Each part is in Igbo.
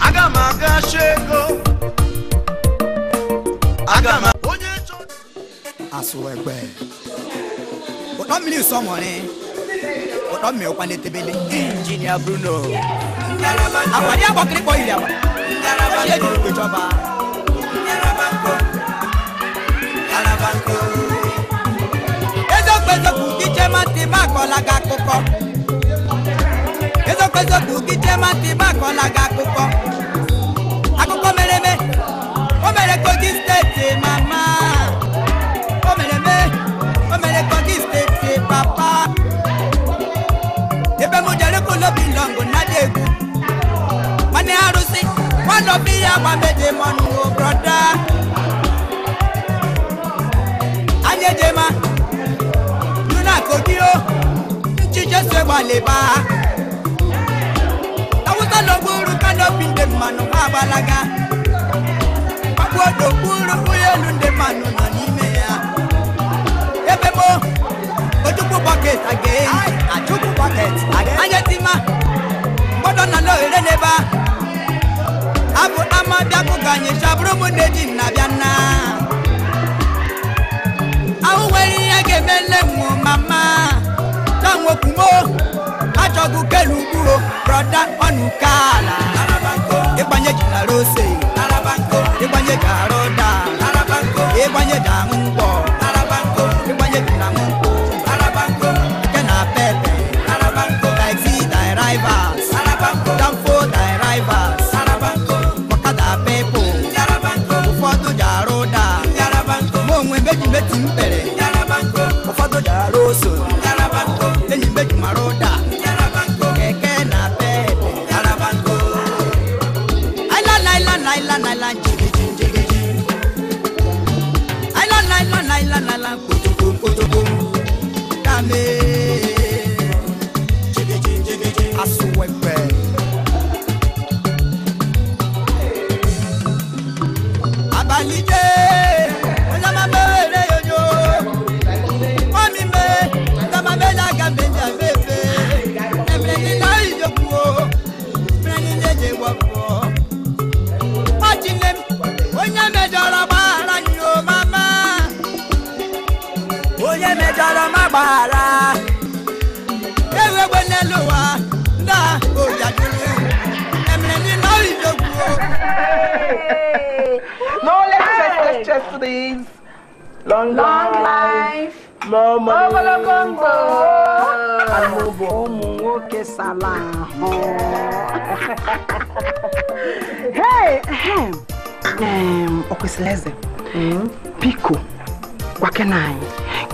aga m aga shego aga m onye chọ. asụ egbe ụtọ mmiri nsọmọrị ụtọ mmiri ụkwa na-etebele injinia bruno akwari agbakịrịkpọ iri agba ihe jiri kwe chọba ezokwu ezokwu iche matị ma akọla gị akụkọ kwezokwu gị jee mata ibe akọla gị akụkọ akụkọ mere eme o mere kogi steeti mama o mere eme o mere kogi steeti papa ebe m jere kulo bilọngụ na dị egwu nwanne arụsị nwanne obi ya gbameje m ọnụ broda anya ejema nuna kogi o nchi jesu egbaleba kano gburu kano bi ndị mmanụ agbalaga agbodo gburu ụlọ elu ndị mmanụ nọ n'ime ya ebe gboo ojukwu bọket aga-eyi achukwu bọket anya mgbọdọ nọ a abụ ama bịakụ anyị ji nna ihe ga-eme nne m mama ọjọ́gun kẹlu kúrò broda ọ̀nù kààlà. ìpànyẹ jìlá ló ṣe. ìpànyẹ jàrọ̀ dà. ìpànyẹ dàmú pọ̀. salaho okwesịrị eze piko biko gwakena anyị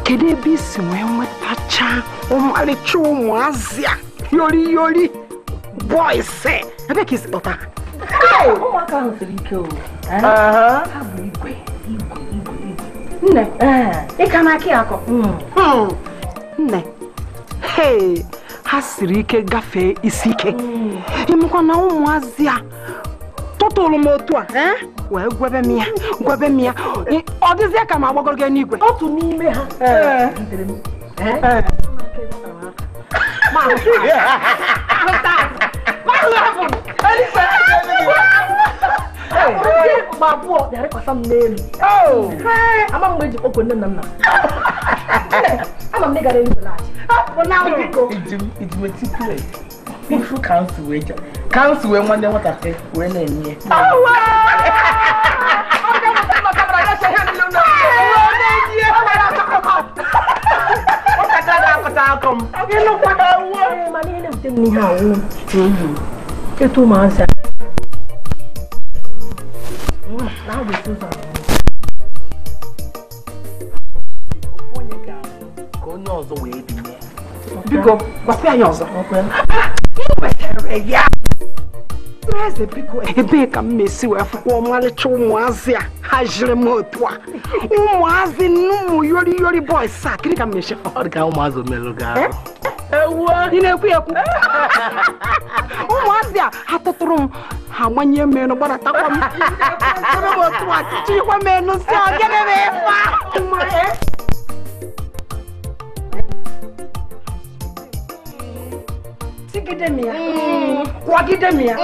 kedụ ebe isi wee nwetacha ọmarịcha ụmụazị a yori yori boys ebe ka isi kpọta ụmụaka ahụ siri ike o ha bụ igwe igwe igwe nne ịka n'aka ya akọ nne hei ha siri ike gafee isi ike ịmụkwa na ụmụazị a tụtụrụ m otu a wee gwebe m ya gwebe m ya ọ dịzie ka m agbagoro gị n'igwe otu n'ime ha ma abụọ bịara kwasa m n'elu oh. ama mgbe e ji kpọkọ nne nna nna when? When what I say? Oh wow! ama m negara elu bụlaachị ifu kansụl wee chọ kansụl wee nwanne nwatakịrị wee na-enye Eto ụmụazị a. Na-agwa eto ụzọ. ọzọ wee ya biko anyị ọzọ ya eze biko ebee ka m na-esi wee fụkwa ọmarịcha ụmụazị a ha jiri m otu a ụmụazị n'ụmụ yori yori bọys a ka m na-eche ụmụazị merụ gị eh? ị na-ekwu ekwu ụmụazị a ha tụtụrụ m ha gbanye m enu m otu a m enu si ọ gịnị ma ya mm. kwagide m mm. ya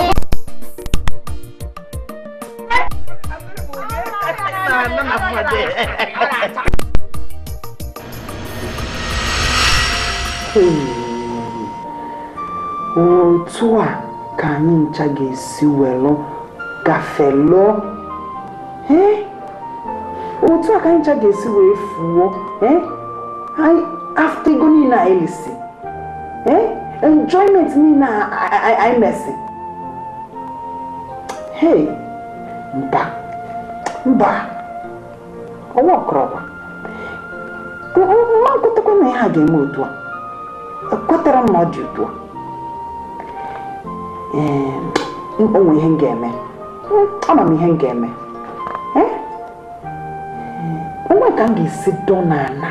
otu a ka anyị ncha ga-esi welụ gafelụọ otu a ka anyị ncha ga-esi wee fuo afta ego niile anyị lisi enjoyment niile anyị mesi hey mba mba ọnwa ọkọrọkwa nwa nkwetakwa na ha ga-eme otu a ekwetara m na ọ dị otu a onwe ihe m ga-eme hmm, ama m ihe m ga-eme eh? onwe ka m ga-esi dọ n'ala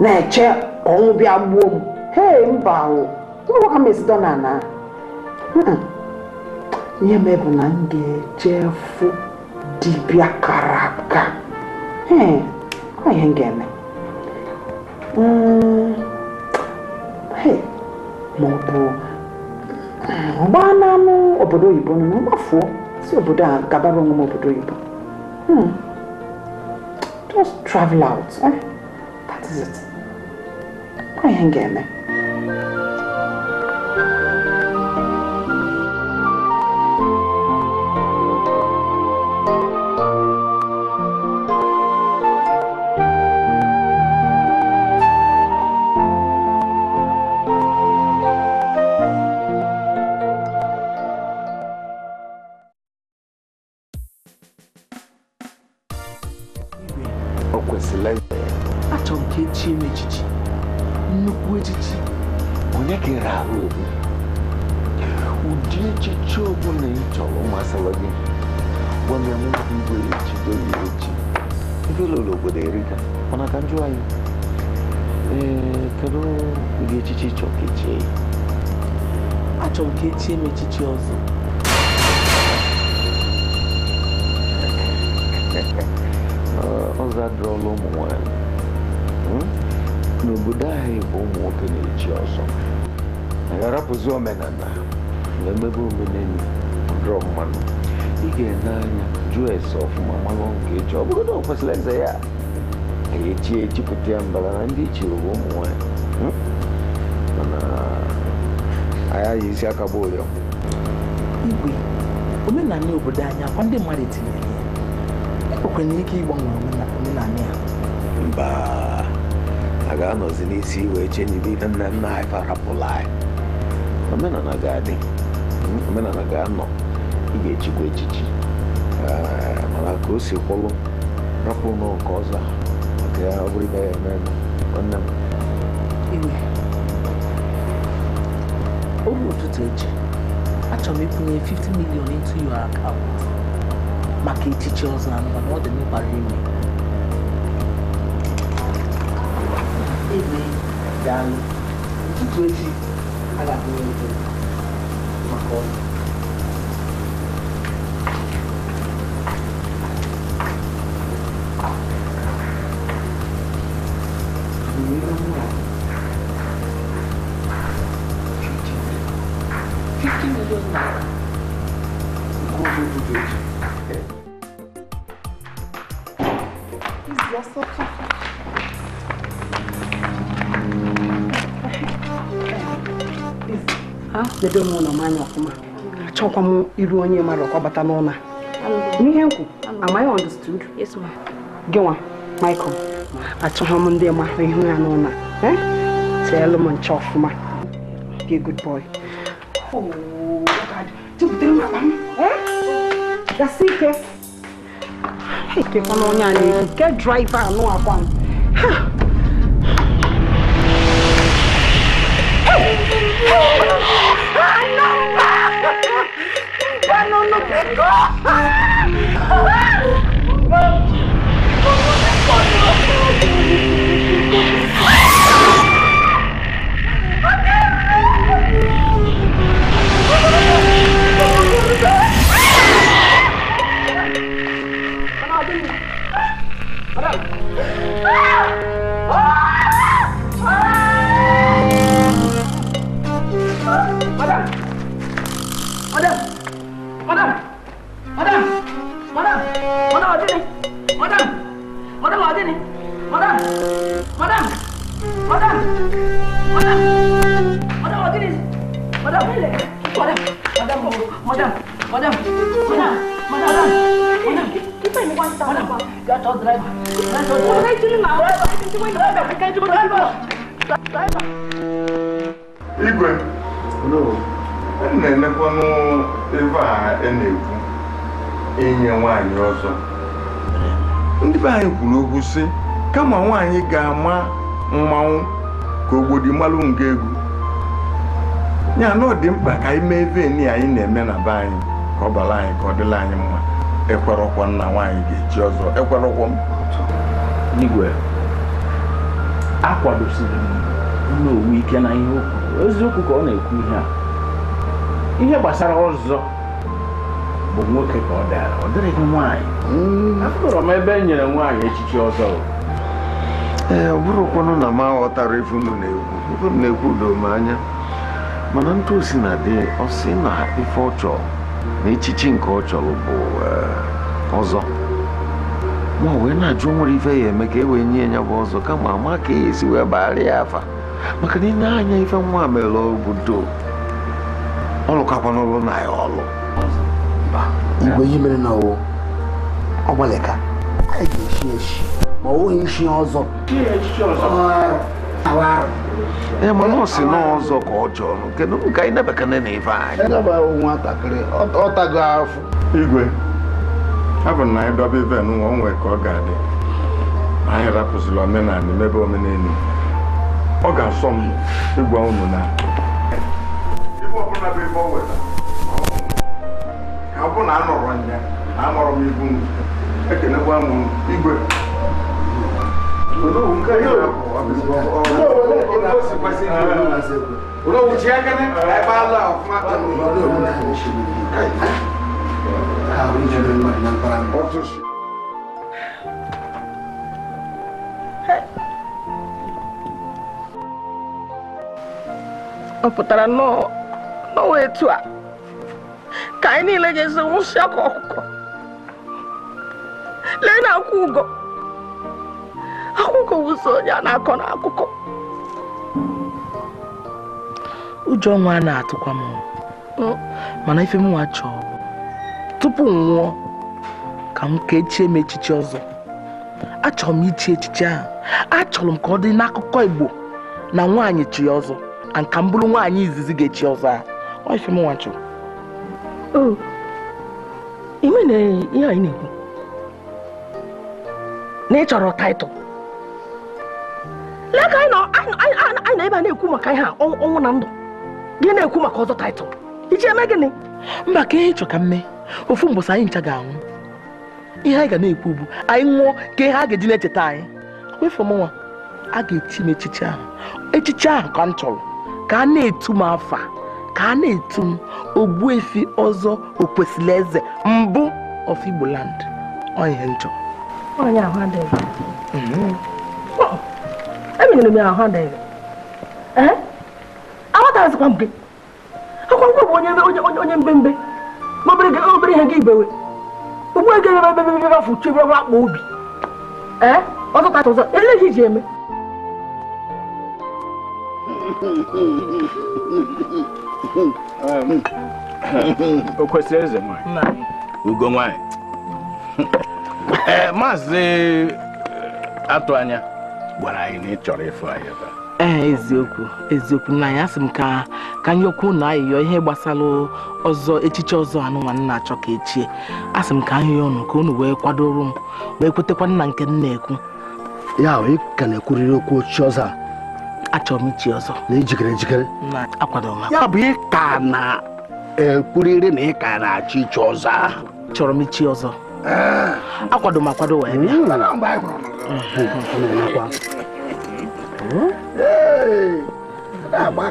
na-eche ọnwụ bịa gbuo m hei mba nwa na ihe hmm. bụ na m ga-eje fụ dibịa kara aka hmm, ihe m ga hmm, n'anụ obodo oyibo nụ mgbafuo si obodo a gabara onwe m obodo oyibo eh? ihe m eme thank you m ka echie m echichi ọzọ ọzọ adịrọla ụmụ nwanyị hmm? n'obodo anyị bụ ụmụ nwoke na-echi ọzọ ga-arapụzi omenala na-emebe omenelu dụrọ mmanụ ị ga-ene anya jụọ ese ọfụma mmanụ nke echi ọ bụrụ na ọ kwesịrị eze ya ga-echi echipụta ya mbara na ndị ichiri e bụ ụmụ nwanyị hmm? anyị ji isi aka bụ ụyọ igwe omenala obodo anyị akwa ndị mmadụ etinyere ya e ike ịgbanwe omenala ya mba a ga-anọzi n'isi iwe eche n'ibe ibe nna nna anyị farapụla anyị omenala ga-adị omenala ga-anọ ị ga-echikwa echichi mana ka o si kwụlụ rapụ n'ụkọ nke ọzọ maka ya ọ bụrụ ibe ya eme nwanne m òtútù echi achọrọ m ịkwụnye 50 million into your account maka echichi ọzọ na mba na ọ dị mkpara ime ebe daalụ ụtụtụ echi aga m maka ọrụ dedo m ụlọ m anya ọfụma achọkwa m iru onye mmadụ ka bata n'ụlọ n'ihe nkwu amaghị I understood gị Michael achọghị m ndị ma ahụ ihu ya n'ụlọ eh? teelụ m nche ọfụma good oh, eh? nke draiva anụ nó chết quá kama nwaanyị ga-ama mmanwụ ka ogbodi malụ nke egwu ya na ọ dị mkpa ka anyị mee veni anyị na-eme na be anyị ka ọ bara anyị ka ọ dịla anyị mma ekwerọkwa nna nwaanyị ga-eji ọzọ ekwerọkwa m igwe akwadosiri m nna owu ike na ihe okwu eziokwu ka ọ na-ekwu ihe a ihe gbasara ọzọ bụ nwoke ka ọ dara ọ dịrịghị nwaanyị hmm. afụrọ m ebe e nyere nwaanyị echichi ọzọ ee eh, ọ bụrụkwanụ na m aghọtara ife na-ekwu ife na-ekwu doo m anya mana ntụ osi na dị ọsị na ife ọchọ na echichi nke ọ chọrọ bụ eh, ọzọ ma wee na-ajụ nwere ife ya eme ka e wee nye ya bụ ọzọ kama ama ka ya e esi wee bagharịa ya afa maka na ịna anya ife nwa mere obodo ọlụkakwa n'ụlọ na ya ọlụ igwe ihe mere na ọwụ ọgbalịka ga-eshi eshi ma ọ nweghị ishi ọzọ ee mana ọ si n'ọzọ ka ọ jọrọ kedu ka anyị nebekene na ife anyị nwatakịrị ọtago afọ igwe abụ na anyị dọba ive nwa o nwee ka ọ ga-adị anyị rapụzila omenala mebe omenelu ọ ga-asọ m ịgwa unu na ọ bụ na anọrọ ya na amụrụ m ibu m ekenekwa m igwe Olówó ká yóò olówó ló kó sì pẹ́ sí ìlú olówó náà sẹ́kù. Olówó tí ẹgẹ́ni ẹ bá lọ fún àtàlù. Olówó olówó náà ní ṣe ní ìlú káyìí. Àwọn oníjọba ìmọ̀ ìmọ̀ ìpara mi. Wọ́n tún ṣe. Ọ pụtara n'ọnwa etu a ka anyị niile ga-esi nwụsị ọkụ ọkụkọ lee na akwụ ụgọ akwụkwọ ụzọ onye a na-akọ n'akụkọ ụjọ nwa a na-atụkwa m mana ife m chọọ tupu m nwụọ ka m ka echie m echiche ọzọ achọrọ m ichi echiche ahụ achọrọ m ka ọ dị n'akụkọ Igbo na nwaanyị chi ọzọ na ka m bụrụ nwaanyị izizi ga-echi ọzọ ahụ ife m nwa ị ihe anyị na-ekwu na ị chọrọ taịtụl lee ka anyị na ebe a na-ekwu maka ihe ọnwụ na ndụ gị na-ekwu maka ọzọ taịtụl iji eme gịnị mba ka ihe chọ ka mme ofu mbọsị anyị ncha ga-anwụ ihe anyị ga na-ekwu bụ anyị nwụọ ka ihe a ga-eji na-echeta anyị wefu m nwa a ga-echi m echiche ahụ echiche ahụ ka m chọrọ ka a na-etu m afa ka a na-etu m ogbuefi ọzọ okwesịrị eze mbụ of Igbo land ọhịa nchọ e m ya ahụ adịghị amatazikwa m gị akwa nkwọ bụ onye onye mbembe obere ihe gị ibewe ugbu ego ebe ebe ebe afọ uche ebe akpa obi ee ọzọta ọzọ ele ihe iji eme o kwesịrị eze ugo nwanyị eh, maazị eh, atụ anya gwara anyị na ị chọrọ ịfụ anyị ebe a. ee eh, eziokwu eziokwu na ya sị m ka ka anyị okwu na ayịyọ ihe gbasara ọzọ echiche ọzọ anụnwa nna achọ ka echie a sị m ka ahịa ọnụ ka unu wee kwadoro m wee kwetekwa nna nke m na-ekwu ya ahụ ka na-ekwurịrị okwu ochi ọzọ a achọrọ m ichi ọzọ na ijikere ejikere akwadoro m ya bụ ịka na-ekwurịrị na ịka na-achọ ichi ọzọ ahụ chọrọ m ichi ọzọ eh. akwado m akwado wee bịa hmm. nna anyị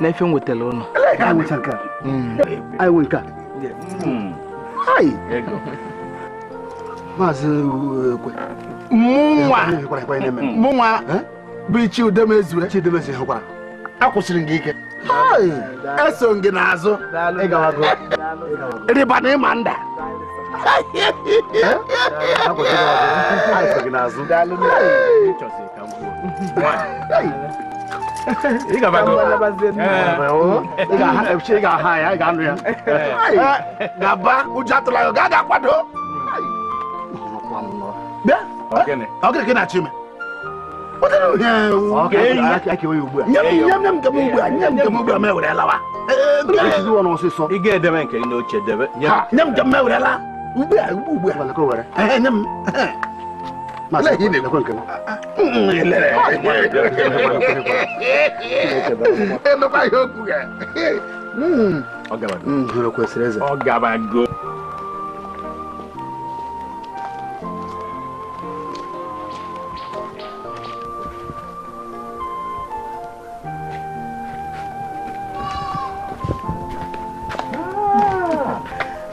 n'efe m wetara ụnụ anyị nwe nke maazị ekwe mụnwa bụ Chidem ezure Chidem ezure hụkwara akwụsịrị gị ike eso gị n'azụ rịba na ịma nda ị ga-aha ya ị ga-anụ ya gaba ụjọ atụla ya gaga akwado ọgịrị na chime nye m njem ewerela ugbu a ugbu ugbu a lọkọ were ehe nye m masị ị na-elekwe nke m emekwa ihe okwu ya ọ hmm. gabago hmm, kwesịrị eze ọ gabago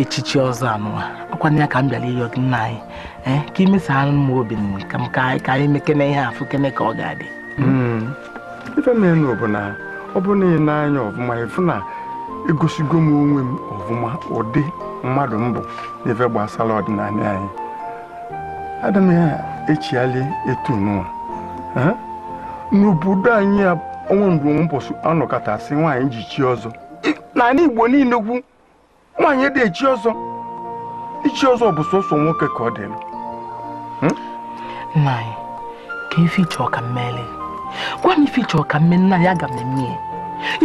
echichi ọzọ anụwa ọkwana ya ka m bịara ịyọ nna anyị eh, ka ka imesara m obi ka ka anyị mekene ihe afụ kene ka ọ ga-adị hmm. ife na-enu bụ na ọ bụ na ị na-anya ọfụma ịfụ na egosigo m onwe m ọfụma ụdị mmadụ mbụ n'ife gbasara ọdịnala anyị adịm ya echiali etu n'ụwa eh? n'obodo anyị ọnwa mgbe ụbọchị anọkọtasị nwaanyị ji chi ọzọ na igbo niile kwu nwaanyị dị echi ọzọ ichi ọzọ bụ sọsọ nwoke ka ọ dị hmm? nna anyị ka ife ịchọ ka mmele gwa m ife ka mme nna ya ga m eme ya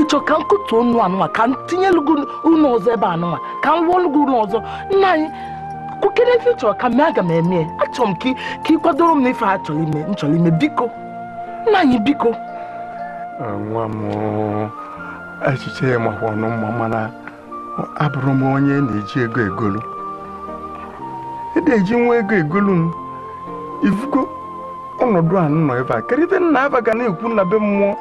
ịchọ ka m kụtuo ọnụ anụwa ka m tinye ụlọ ọzọ ebe anụwa ka m rụọ ọlụgụ ọzọ nna anyị kwukere ife ịchọrọ ka mme aga m eme achọrọ m ka ị kwadoro m na ife a ime nchọrọ ime biko nna anyị biko nwa m echiche ya makwa ọnụ mma mana abụrụ m onye na-eji ego egolu e na-eji nwa ego egolu m ifugo ọnọdụ a nọ ebe a kerịta nna aba ga na-ekwu na be mmụọ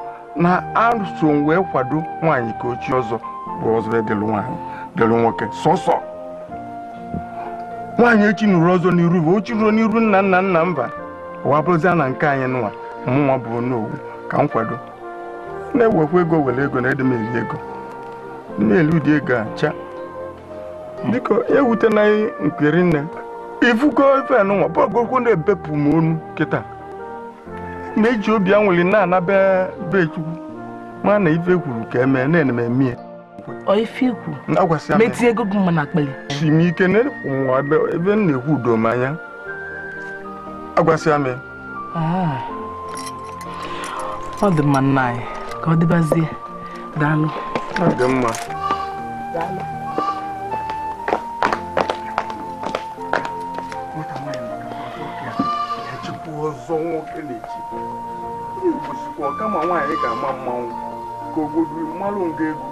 na aso wee kwado nwaanyị ka ochie ọzọ bụ ọzọ edelu nwaanyị delu nwoke sọsọ nwaanyị echi nụrụ ọzọ n'iru bụ ochi ruo n'iru nna nna nna mba ụwa bụrụzia na nke anyị nwa mụnwa bụ onowu ka m kwado na-ewekwa ego were ego na edemeri ego na dị ego acha biko ewute na nkiri nne ifugo ife nwa bọgokwu na-ebepụ m onu kịta na-eji obi anwụli na-anaba be chukwu ma na ife kwuru ka emee na-eneme mie si m ike n'ụwa ebe m na-ekwu udo m anya agwasịa m ah. ọ dị mma nna anyị ka ọ dịbazie daalụ ọ dị mma ọzọ nwoke na-echi igbosikwa kama nwaanyị ga-ama mmanwụ ka obodo mmalụ nga egwu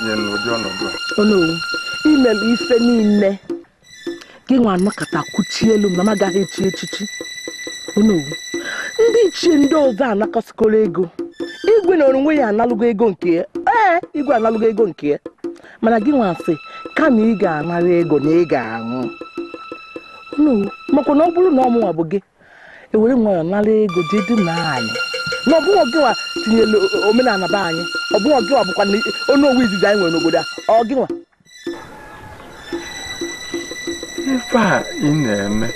nye n'ụdị ọnọdụ a imelu ife niile gị nwa anọkọta kwuchie elu m na m agaghị echi echichi onowu ndị ichie ndị ọzọ anakọsikọrọ ego igwe na onwe ya analụgo ego nke ya ee igwe analụgo ego nke ya mana gị ka kama ị ga-anara ego na ị ga-aṅụ onowu makwa na ọ bụrụ na ọmụnwa bụ gị ewere nwayọọ nara ego dị na anyị na ọbụghị ọgịnwa tinyere omenala be anyị ọbụghị bụkwa na onu owu izizi anyị nwere n'obodo a ọgịnwa ife a ị na-eme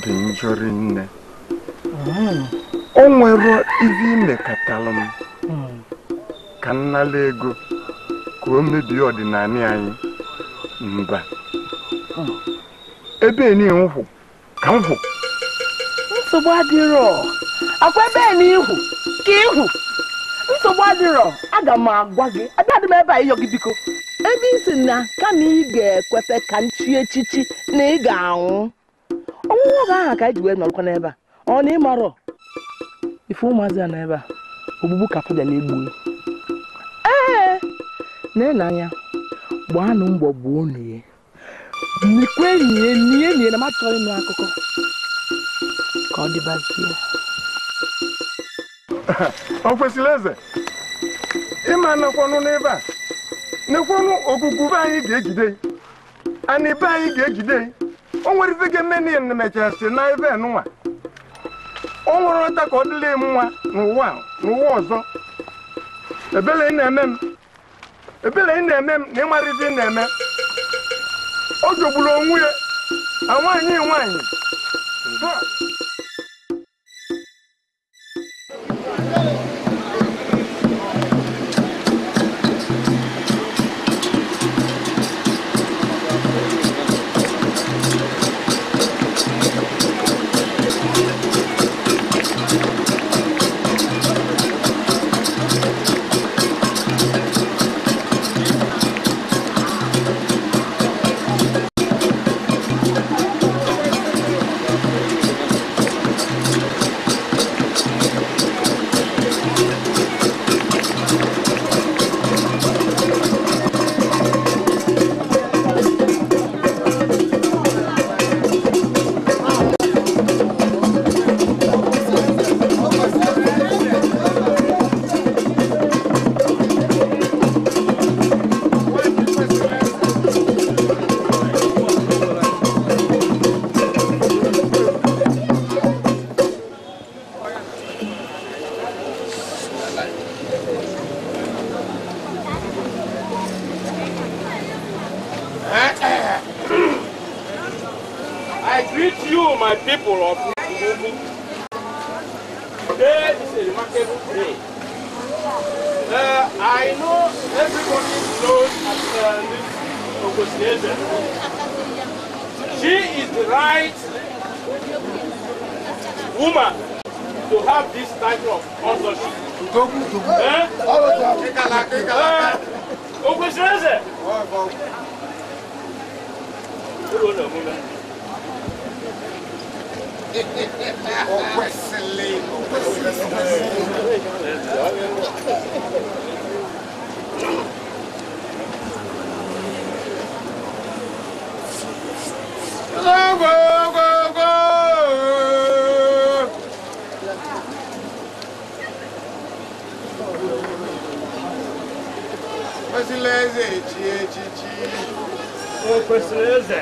dị njọ nne hmm. o nwere ibe imekọtalụ m hmm. ka nnala ego ka o mebie ọdịnala anyị mba hmm. ebe enyi m ka m hụ nsogbu adịrọ akwa ebe na ihu ka ihu nsogbu adịrọ aga m agwa gị abịadị m ebe a ịyọ gị biko ebe isi na kama ị ga-ekweta ka nchi echichi na ị ga-anwụ ọnwụnwụ oge ahụ ka anyị ji wee nọrọkwa n'ebe a ọ na ịmarọ ife ụmụazị a n'ebe a ogbugbu ka na egbuo ee na-enanya gbaanụ mbọ gbuo unu ya nikwe nye nie nie na matọrọ ịnụ akụkọ ka ọ dịbazie ọ kwesịrị eze ịma nekwanụ n'ebe a nekwanụ okuku be anyị ga-ejide na ibe anyị ga-ejide o nwerezig meni mechasị na ebe nwa o nwere ọta ka ọ dịla m nwa n'ụwa n'ụwa ọzọ ebele ị na-eme m ebele ị na-eme m na ịmara ị na-eme o jogburu onwe ya nwaanyị nwaanyị Hey. I know everybody knows Miss uh, She is the right woman to have this type of sponsorship. Okwesireze. Okwesile. Okwesile. Presileze, eti, eti, eti. Ô, Presileze.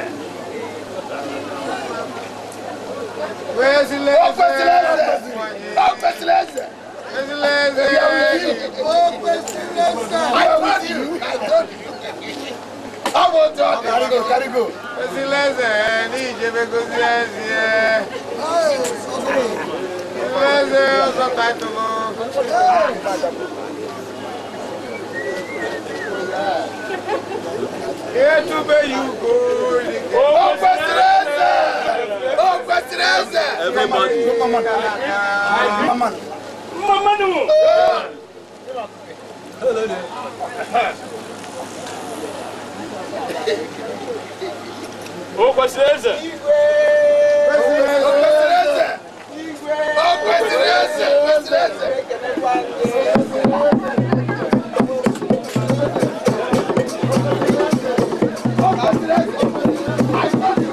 Presileze. Ô, Presileze. Ô, Presileze. I told you. I told you. I want to. Carigo, Carigo. Silence, ni jebe kusilence. Silence, oso kaito mo. Etu be you go. Ope silence. Ope silence. Everybody. Come on. Come on. o Ô, o Coincidência! Ô, Coincidência! Coincidência! Thank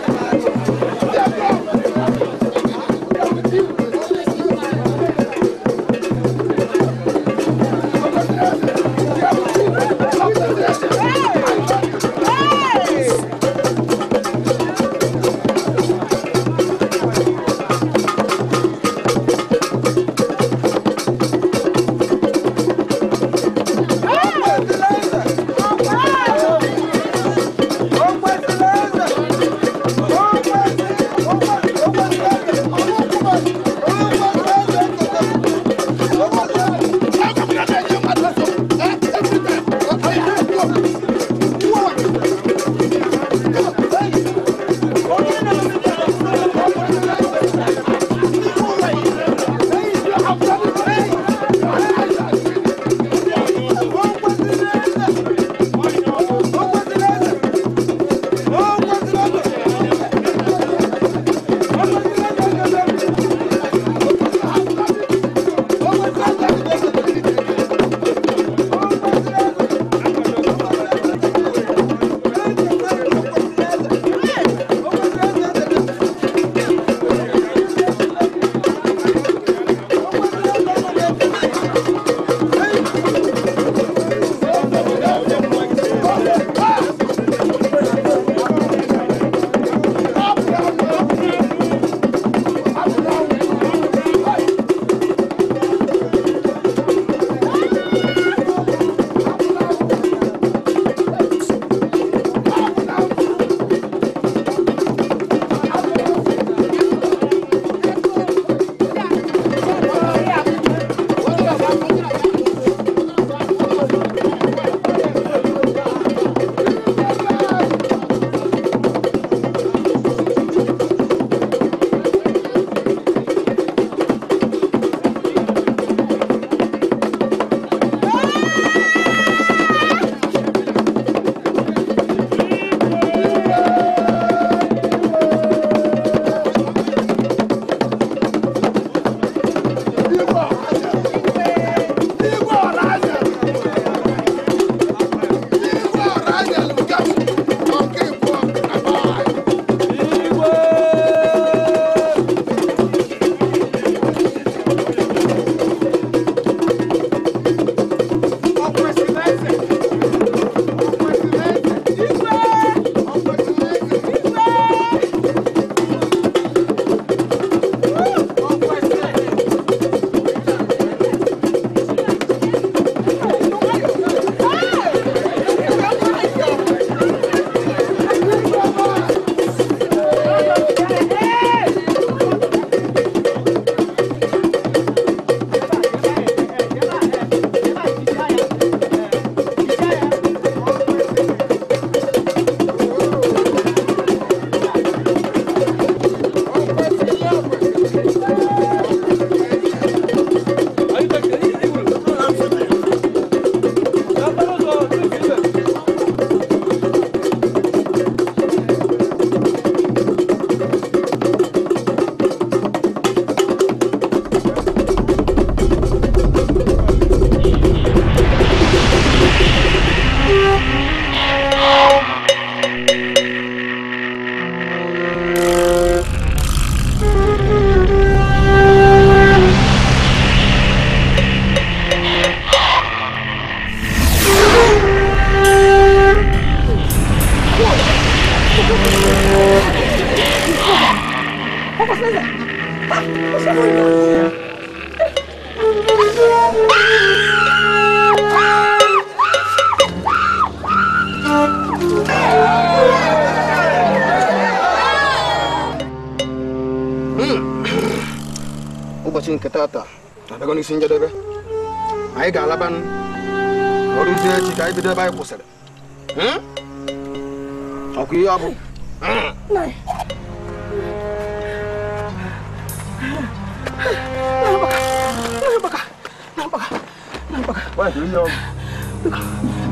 bàjẹ́ ó yẹ ọ.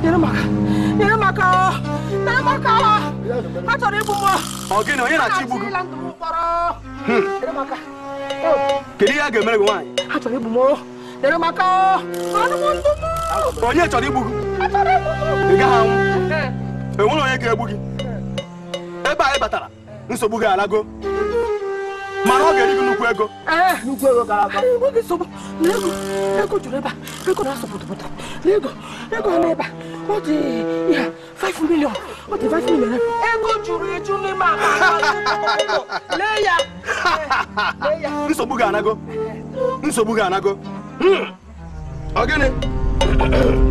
yẹrẹ maka yẹrẹ maka ọ yẹrẹ maka ọ a chọrọ igbu m. ọ gịnị onye na-achọ igbu gị. kedu ihe a ga-emere gị nwaanyị. a chọrọ igbu m yẹrẹ maka ọ ọnụ m ndụ m. onye chọrọ igbu gị. a chọrọ igbu m. ị gaghị anwụ enwere onye ga mana ọ ga-eri gị nnukwu ego nnukwu ego na-asụ pụtụpụta na ego ego n'ebe ọ dị ihe 5 million ọ dị five million eh? ego juru eju n'ime akpa lee ya nsogbu ga-anago nsogbu ga-anago ọ hmm. gịnị